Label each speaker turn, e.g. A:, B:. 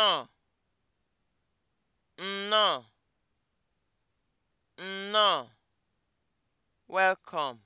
A: nnọọ nnọọ nnọọ welcome